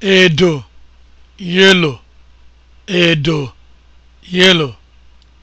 edo yellow edo yellow